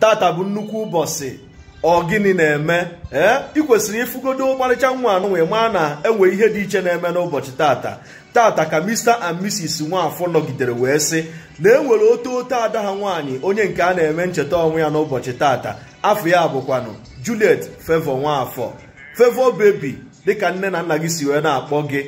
tata bụ nnukwu ụbọchị ọ gịnị na-eme ee ị kwesịrị ịfụgodo ọmarịcha nwa anụ wee maa na enwe ihe dị iche na-eme n'ụbọchị tata tata ka Mr and Mrs Nwafọ nọgidere wee sị na e nwere oto oto ada ha nwaanyị onye nke a na-eme ncheta ọnwụ ya n'ụbọchị tata afọ ya bụkwanụ Juliet Fevọ Nwafọ Fevọ bebi dịka nne na nna gị si wee na-akpọ gị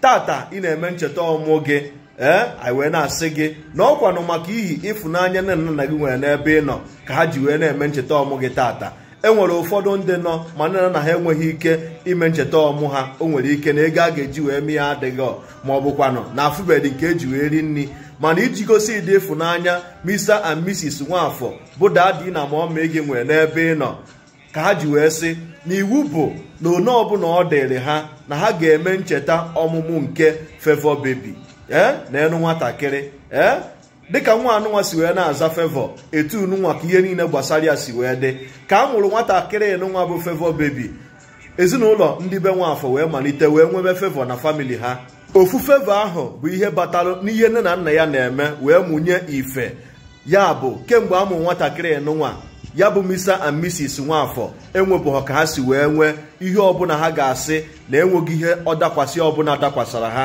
tata ị na-eme ncheta ọmụ gị ee eh? anyị wee na-asị gị na ọkwanụ maka ihi ịfụnanya nne na nna gị nwere n'ebe ị nọ ka ha ji wee na-eme ncheta ọmụ gị taata e nwere ụfọdụ ndị nọ ma nne na ha enweghị ike ime ncheta ọmụ ha o nwere ike na ego a ga-eji wee mee ya adịghị ma ọ bụkwanụ na afụbedị nke eji wee ri nri mana iji gosi ịdị ịfụnanya Mr and Mrs Nwafọ bụ dadi na mama gị nwere n'ebe ị nọ ka ha ji wee sị na iwu bụ na one ọbụla ọ dịrị ha na ha ga-eme ncheta ọmụmụ nke fevọ bebi. Eh? na-enu nwatakịrị ee eh? dịka nwa anụnwa si wee na-aza fevọ etu nunwa ka ihe niile gbasara ya si wee dị ka a nwụrụ nwatakịrị nụnwa bụ fevọ bebi ezinụlọ ndị be nwaafọ wee malite wee nwebe fevọ na famili ha ofu fevọ ahụ bụ ihe batara n'ihe nne na nna ya na-eme wee mụnye ife ya bụ kemgbe a mụrụ nwatakịrị nụnwa ya bụ misa and misis nwaafọ enwebụghọ ka ha si wee nwee ihe ọbụla ha ga-asị na enweghị ihe ọ dakwasị ọbụla dakwasara ha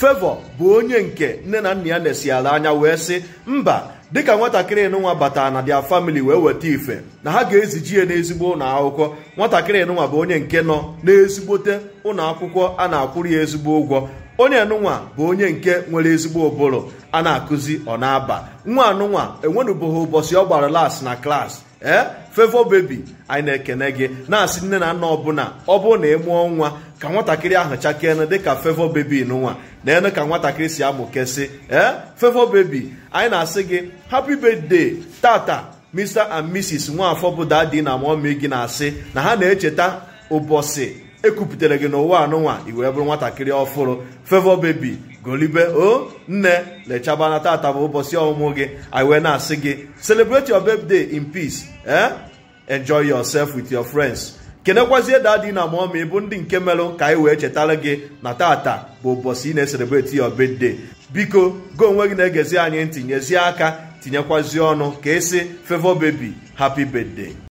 fevọ bụ onye nke nne na nna ya na-esi ala anya wee sị mba dịka nwatakịrị nụnwa batara na dia famili wee weta ife na ha ga-eziji ya n'ezigbo ụnọ akwụkwọ nwatakịrị nụnwa bụ onye nke nọ n'ezigbote ụlọ akwụkwọ a na-akwụrụ ya ezigbo ụgwọ onye nụnwa bụ onye nke nwere ezigbo ụbụrụ a na-akụzi ọ na-aba nwa anụnwa enwenụbụghị ụbọchị ọ gbara las na klaasị ee eh? fevo bebi anyị na-ekene gị na-asị nne na nna ọbụla ọ bụrụ na ịmụọ e nwa ka nwatakịrị ahụ chakene dịka fevo bebi n'ụwa na enu ka nwatakịrị si amụ kesị ee eh? fevo bebi anyị na-asị gị happy birthday tata mr and mrs nwafọ bụ dadi na mọmi gị na-asị na ha na-echeta ụbọchị ekupụtere gị n'ụwa anụnwa i wee bụrụ nwatakịrị ọfụrụ fevo bebi golibe o nne lechaba tata bụ ụbọchị ọmụmụ gị i wee na-asị gị celebrate your birthday in peace eh enjoy yourself with your friends kenekwazie dadi na mọmi bụ ndị nke melụ ka anyị wee chetara gị na tata bụ ụbọchị ị na-eselebreti your birthday biko go onwe gị na-egezi anyị ntinyezie aka tinyekwazi ọnụ ka esi favor bebi happy birthday